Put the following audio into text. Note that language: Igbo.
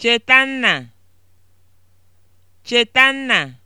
Chetanna Chetanna